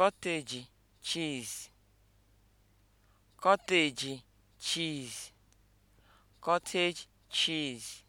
cottage cheese cottage cheese cottage cheese